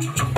Thank you.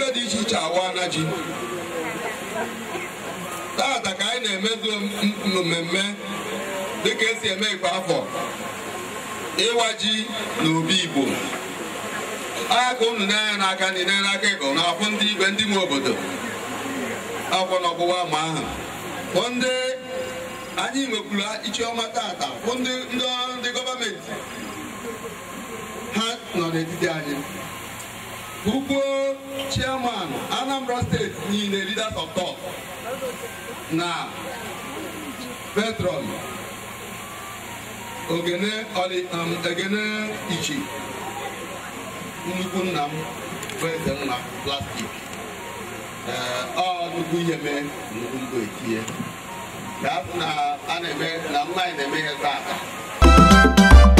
ebe dị iche iche awa na ji tata ka anyị na-emezu mmemme dịka esi eme ikpe afọ ịwa ji na obi igbo aka unu n'anya n'aka ndị n'anya n'aka ego na afụ ndị igwe ndị nwe obodo akwụkwọ na ọgbụwa ama ahụ bụ ndị anyị nwekwuru ichiọma tata bụ ndị gọọmenti ha nọ n'etiti anyị Ugbo chairman Anambra Steeti niile leaders of thought na petrol um, Ogene Ichi nnukwu nna m bụ eze nna plastik eh, ọ nnukwu ihe mee nnukwu mbụ etinye ka a na-eme na nna na-eme ihe taa aka